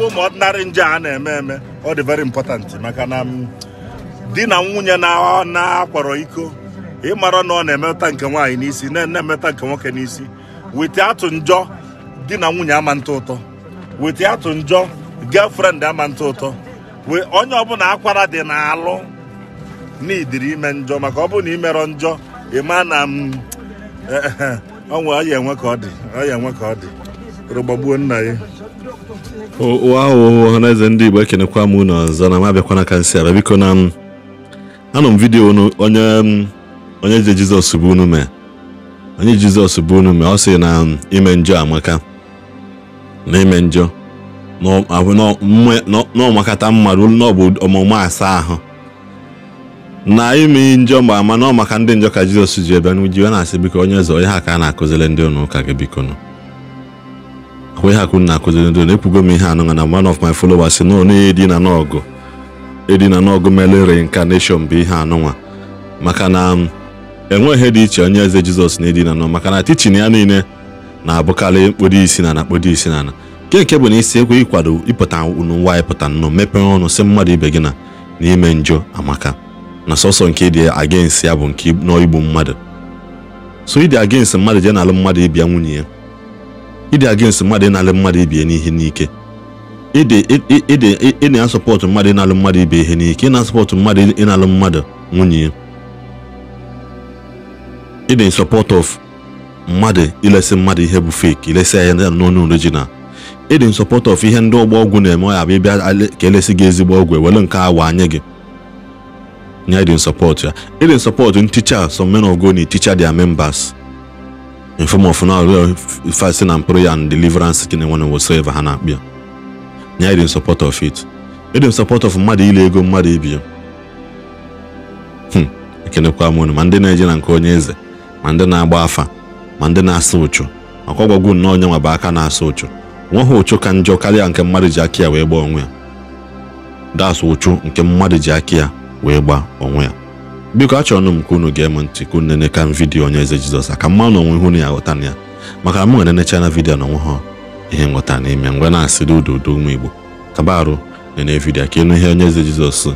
bụ ụmụ ọdịnarị nje a na-eme eme ọ dị very important maka na di na nwunye na-akwọrọ iko ịmara na ọ na-emeta nke nwaanyị n'isi na-emeta nke nwoke n'isi wete atụ njọ di na nwunye ama ntụ ụtọ wete atụ njọ girlfriend ama ntụ ụtọ onye ọbụla akwara dị na-alụ n'idiri ime njọ maka ọ bụ na imerọ njọ ịma na onwe eh, eh, eh, ọ ya enwe ka ọ dị ọ ya enwe ka ọ dị rogbagbuo nna ya ahụ ọhaneze ndị igbo ekenekwa m unu ọzọ na m abịakwana ka nsị ara biko na anọ m vidiyo onye onye je jizọs bụ unu mee onye jizọs bụ unu mee ọ sị na ime njọ amaka na ime njọ n'ọmakata mmadụ n'ọbụ ọmụmụ asaa ahụ na ime njọ mgbe ama n'ọmaka ndị njọ ka jizọs ji ebe n'uji na-asị biko onye eze onye ha ka a na-akụziri ndị ụnụ ụka gị biko nụ ihe ha kwuru na akụziri ndo na-ekwugo m ihe anụnwa na one of my followers no na edina n'ọgụ edina n'ọgụ mere reincarnation bụ ihe anụnwa maka na um, enweghị ihe dị iche onye eze jizọs na edina nọ maka na tichin ya niile na-abụkarị mkpụrụ isi na na mkpụrụ isi na na nke nke bụ na isi ekwe ịkwado ịpụta unu nwa ịpụta nnọọ mepee ọnụ si mmadụ ibe gị na n'ime njọ amaka na sọsọ nke dị against ya bụ nke n'igbu mmadụ so ịdị against mmadụ jee n'alụ mmadụ ịbịa nwunye ya ịdị against mmadụ ịnalụ mmadụ ibie n'ihe n'ike ị na-asọpọtụ mmadụ ịnalụ mmadụ ibe ihe n'ike ị na-asọpọtụ mmadụ ịnalụ mmadụ nwunye ya ị na-esọpọt of mmadụ ilesi mmadụ ihe bụ fake ilesi ya n'onu original ị dị nsọpọt of ihe ndị ọgba ọgwụ na-eme ọ ya bụ ịbịa ka elesi gị ezigbo ọgwụ ewere nke awa anya gị nya ịdị nsọpọt ya ị dị nsọpọt nticha some men of God na-eticha their members form of now fasting and prayer and deliverance kini nwana whatsoever ha na-akpịa ya dị support of it ịdị m support of mmadụ ile ego mmadụ ibi hmm, ekenekwa m unu ma ndị na-eje na nke onye eze ma ndị na-agba afa ma ndị na-asụ ụchụ makwa ọgwagwu nnọọ onye nwaba aka na-asụ ụchụ nweghị ụchụ ka njọ karịa nke mmadụ ji aka ya wee gbaa onwe ya das ụchụ nke mmadụ ji aka ya wee gbaa onwe ya biko achọrọ m ka unu ga eme ntị ka unu neneka m vidiyo onye eze jizọs aka mma n'onwe ihe unu ya ghọta na ya maka m na vidio na vidiyo ha ihe nghọta n'ime mgbe na-asịrị ududo ụmụ igbo kabarụ nene vidio ka ịnụ ihe onye eze jizọs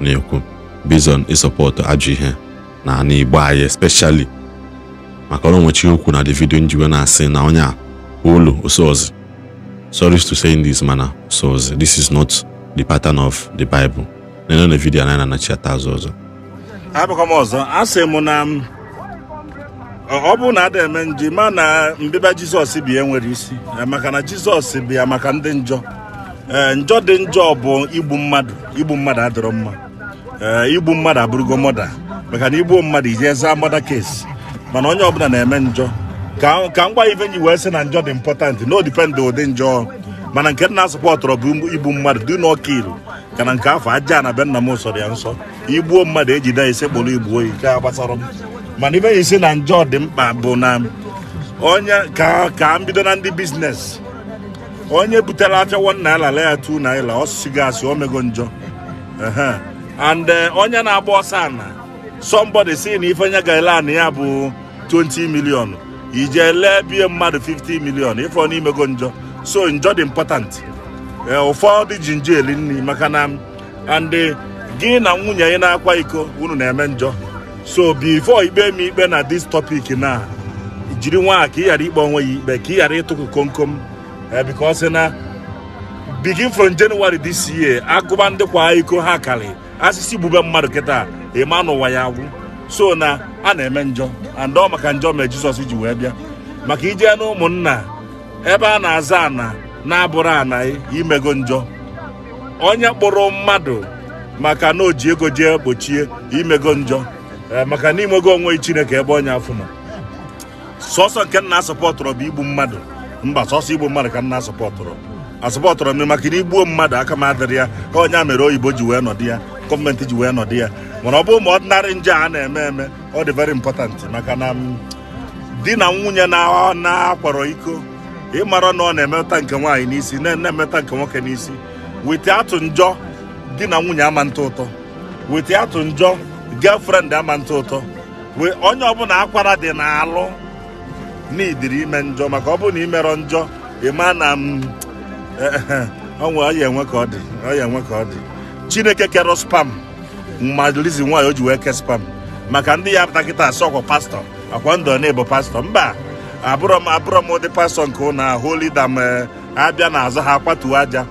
na-ekwu bizon ịsọpọtụ ajọ ihe na ana igbo anyị especially maka ọrụ nwechi okwu na davido njiwe na-asị na onye a olu osozi sorry to say this mana osozi this is not the pattern of the bible na-enye na vidiyo anaghị na-anachi ata azụ ọzọ abụkwa ọzọ ọzọ asị m na ọ bụrụ na ada eme ma na mbịba jizọs bi enwere isi e, maka na jizọs bịa maka ndị njọ ee njọ dị njọ bụ igbu mmadụ igbu mmadụ adịrọ mma ee igbu mmadụ abụrụgo mọda maka na igbuo mmadụ ije zaa mọda kesi mana onye ọbụla na-eme njọ ka gwa ive nyi wee sị na njọ dị impọtant no dipend ụdị njọ mana nke na-asụpọtụrụ bụ igbu mmadụ dị n'ọka ilu kana nke afọ aja na be nna m sọrọ ya nsọ igbuo mmadụ ejide ya ise kpọrọ igbuo ya nke m mana ibe ya isi na njọ dị mkpa bụ na onye ka ka m bido na ndị biznes onye butere apịawo nna lala ya tu naira ọsụsụ gị asị omego njọ and eh, onye na-agba ọsọ ana somebody si na ife onye ga-ele ana ya bụ 20 million ije lee bie mmadụ 50 million ife ọ n'imego njọ so njọ dị important E, ụfọdụ ji njeli nri maka na ndị gị na nwunye anyị na-akwa iko unu na-eme njọ so bifo ikpe m ikpe na dis topic na jiri nwa ka ị ghara ikpe onwe ya ikpe ka ị ghara ịtụkụ komkom e, because na bigin from January this year agụba ndị kwa iko ha kari asịsị gbube mmadụ kịta ịma n'ụwa ya agwụ so na a na-eme njọ andọ maka njọ mere Jizọs ji wee bịa maka ijee na ụmụnna ebe a na-aza ana na-abụrụ anaghị imego njọ onye kpụrụ mmadụ maka na o ji ego jee gbochie imego njọ eh, maka na imego onwe chineke ebe onye afụ nọ sọsọ nke nna asọpọtụrụ bụ igbu mmadụ mba sọsọ igbu mmadụ ka nna asọpọtụrụ asọpọtụrụ m maka na igbuo mmadụ aka m adịrị ya ka onye a mere oyibo ji wee nọdụ ya gọọmenti ji wee nọdụ ya mana ọ bụ ma ọdịnarị nje a na-eme eme ọ dị very important maka na di na nwunye na akwarọ iko ịmara na ọ na emeta nke nwaanyị n'isi na-emetụta nke nwoke n'isi weta atụ njọ di na nwunye ama ntụ ụtọ weta atụ njọ girlfriend ama ntụ ụtọ onye ọbụla akwara dị n'alụ n'idiri ime njọ maka mm, e, ọ bụrụ na imerọ njọ ịma na onwe ọya enwe ka ọ dị ọya enwe ka ọ dị chineke kere spam ma lizi nwaanyị o ji wee ke spam maka ndị ya pụta kịta asị ọkwa pastọ akwa ndụ na pastọ mba abụrọ m ụdị pastọ nke ụnụ ahụ lida m e, abịa na azụ ha kwatuo aja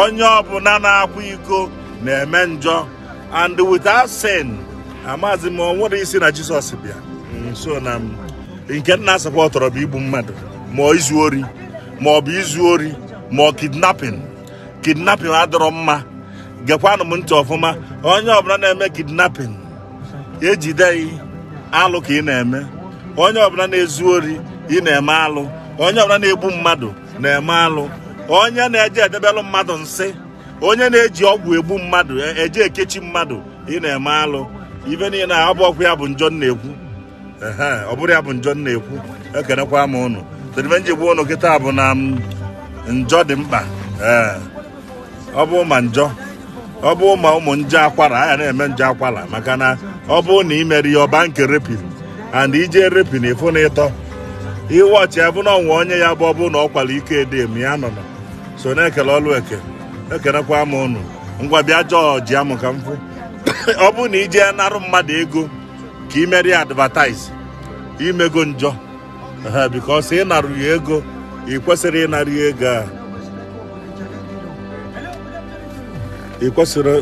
onye ọbụla na-akwa iko na-eme njọ and without sin amazi m nwere isi na jisọs bịa nso mm, na nke nna asịkwa tọrọ bụ igbu mmadụ ma izu ori ma ọ bụ izu ori ma ọ kidnapin kidnapping adọrọ mma gekwanụ m ntị ọfụma onye ọbụla na-eme kidnapping ejide alụ ka ị na-eme onye ọbụla na-ezu ori ị na-eme alụ onye ọbụla na-egbu mmadụ na-eme alụ onye na-eje edebelụ mmadụ nsị onye na-eji ọgwụ egbu mmadụ e, eje ekechi mmadụ ị na-eme alụ ibe niile ọ bụ ọgwụ ya bụ njọ na-ekwu ọ bụrụ ya bụ njọ na-ekwu ekenekwa m ụnụ tedibenji gbuo ụnụ kịta bụ na njọ dị mkpa ọ bụ ma njọ ọ bụ ma ụmụ nje akwara a ya na-eme nje akwara maka na ọ bụ na imere ya ọba nke repin and ije repin ịfụ na ịtọ iwọchị ya bụ na ọnwa onye ya bụ ọ bụ na ọ kwala ike edem ya nọ nọ so na-ekele ọlụ eke ekenekwa m unu ngwa bịa jọọji amụ ka m ọ bụrụ na ijee narụ mmadụ ego ka ị merie advataiz imego njọ ha bikos ị narụ ya ego ị kwesịrị ịnara ya ego a ị kwesịrị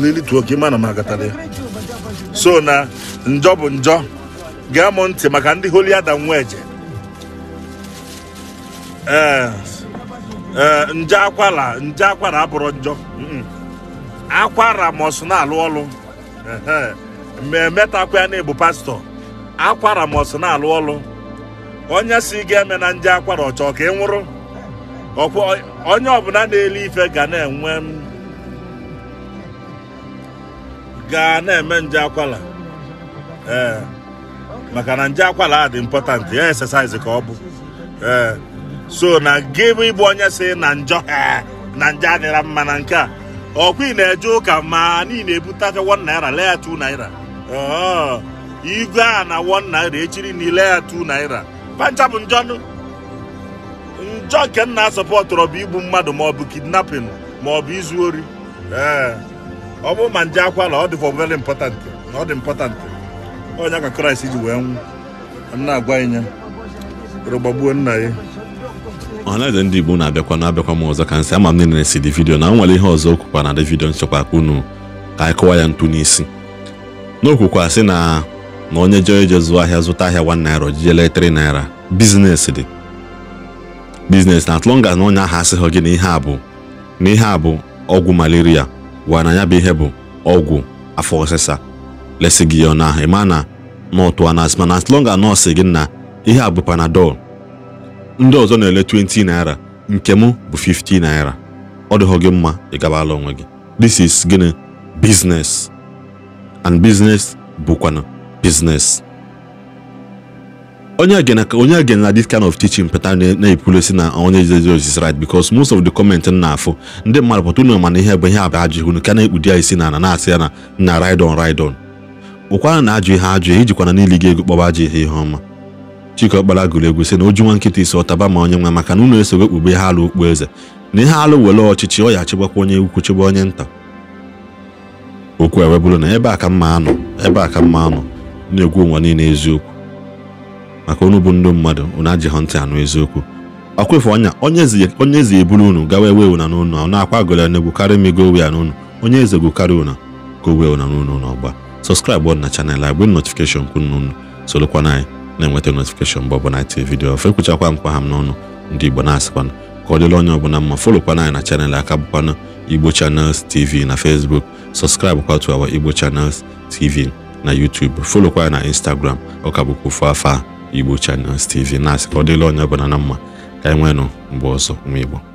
lilituo ka ịma na m agatara ya so na njọ bụ njọ gee m ntị maka ndị holi adam nwa eje ee eh, eh, nje akwara nje akwara abụrụ njọ akwara m'ọsụ na-alụ ọlụ memetakwa ya na-ebu pastọ akwara m'ọsụ na-alụ ọlụ onye si ga-eme na nje akwara ọchọ ka ị nwụrụ onye ọbụla na-ele ife ga na-enwe ga na-eme nje akwara ee eh, maka na nje akwara dị important ya exercise ka ọ bụ ee so na gị bụ ịbụ onye si na njọ eh, na njọ adịra mma na nke a ọkwa ị na-eje ụka ma na ị na-ebutaka 1 naira lee ya naira oh, igwe a na 1 naira echiri na ile ya 2 naira pancha bụ njọ njọ nke nna sọpọtụrụ bụ igbu mmadụ maọbụ kidnapping maọbụ izu ori eh, ọ bụrụ ma nje akwala ọ dị for very na ọ dị important onye ka kraịst ji wee nwụ na-agwa ịnya gbagbuo nna ya ọhaneze ndị igbo na-abịakwa na-abịakwa m ọzọ ka nsị ama m niile si dị vidio na nwere ihe ọzọ okwukwa na dị vidiyo nchekwa unu ka anyị kụwa ya ntu n'isi n'okwukwa sị na na onye jee ije zụọ ahịa zụta ahịa 1 naira ojijele 3 naira biznes dị biznes na as na onye ahụ asịghị gị na ihe a bụ na ihe a bụ ọgwụ malaria gwa na ya bụ ihe bụ ọgwụ afọ ọsịsa lesi gị ya ahụ ịma na nọtụa na asịma na gị na ihe a bụ panadol ndị ọzọ na-ele 20 naira nke m bụ 50 naira ọ dịghọ gị mma ị gabala onwe gị this is gịnị business and business bụkwana business onye again onye again na this kind of teaching pata na-ekwulosi na onye Jesus is right because most of the comment na afọ ndị mmadụ pụta unu mana ihe bụ ihe abụ ajụghị unu ka na-ekpudi ya isi na ana na-asị ya na na ride on ride on ụkwara na ajụ ihe ajụ ijikwana n'ili gị ego kpọba ajụ ihe ihe ọma Chikeọkpara gụrụ egwu si na oju nwa nkịta isi ọtaba ma onye nwa maka na unu esowe kpube ha alụ okpu eze na ihe alụ were ọchịchị ọ ya achịgbakwa onye ukwu chịgba onye nta okwu ewe bụrụ na ebe a ka mma anọ ebe a ka mma anọ na-egwu ụwa niile eziokwu maka unu bụ ndị mmadụ unu ajịghọ ntị anụ eziokwu ọkwefe ọnya onye ezi eburu unu gawa ewe una n'ụnụ ọ na-akwa gole n'egwu karịa m ego wea n'ụnụ onye eze gwu karịa una ka o wee una n'ụnụ n'ọgba sọskraịbụ na chanel agbe notifikeshọn kwunu unu solokwana anyị na-enweta notifikeshọn mgbe ọbụla itinye vidiyo ọfụ ekwuchakwa mkpa ha m n'ọnụ ndị igbo na-asịkwana ka ọ dịla onye ọbụla mma folokwana anyị na chanel aka bụkwana igbo channels tv na fesbuk sọskraịbụ kwa to our igbo channels tv na youtube folokwa na instagram ọka bụkwa ofu afa igbo channels tv na-asị ka ọ dịla onye ọbụla na mma ka anyị e mgbe ọzọ nwa igbo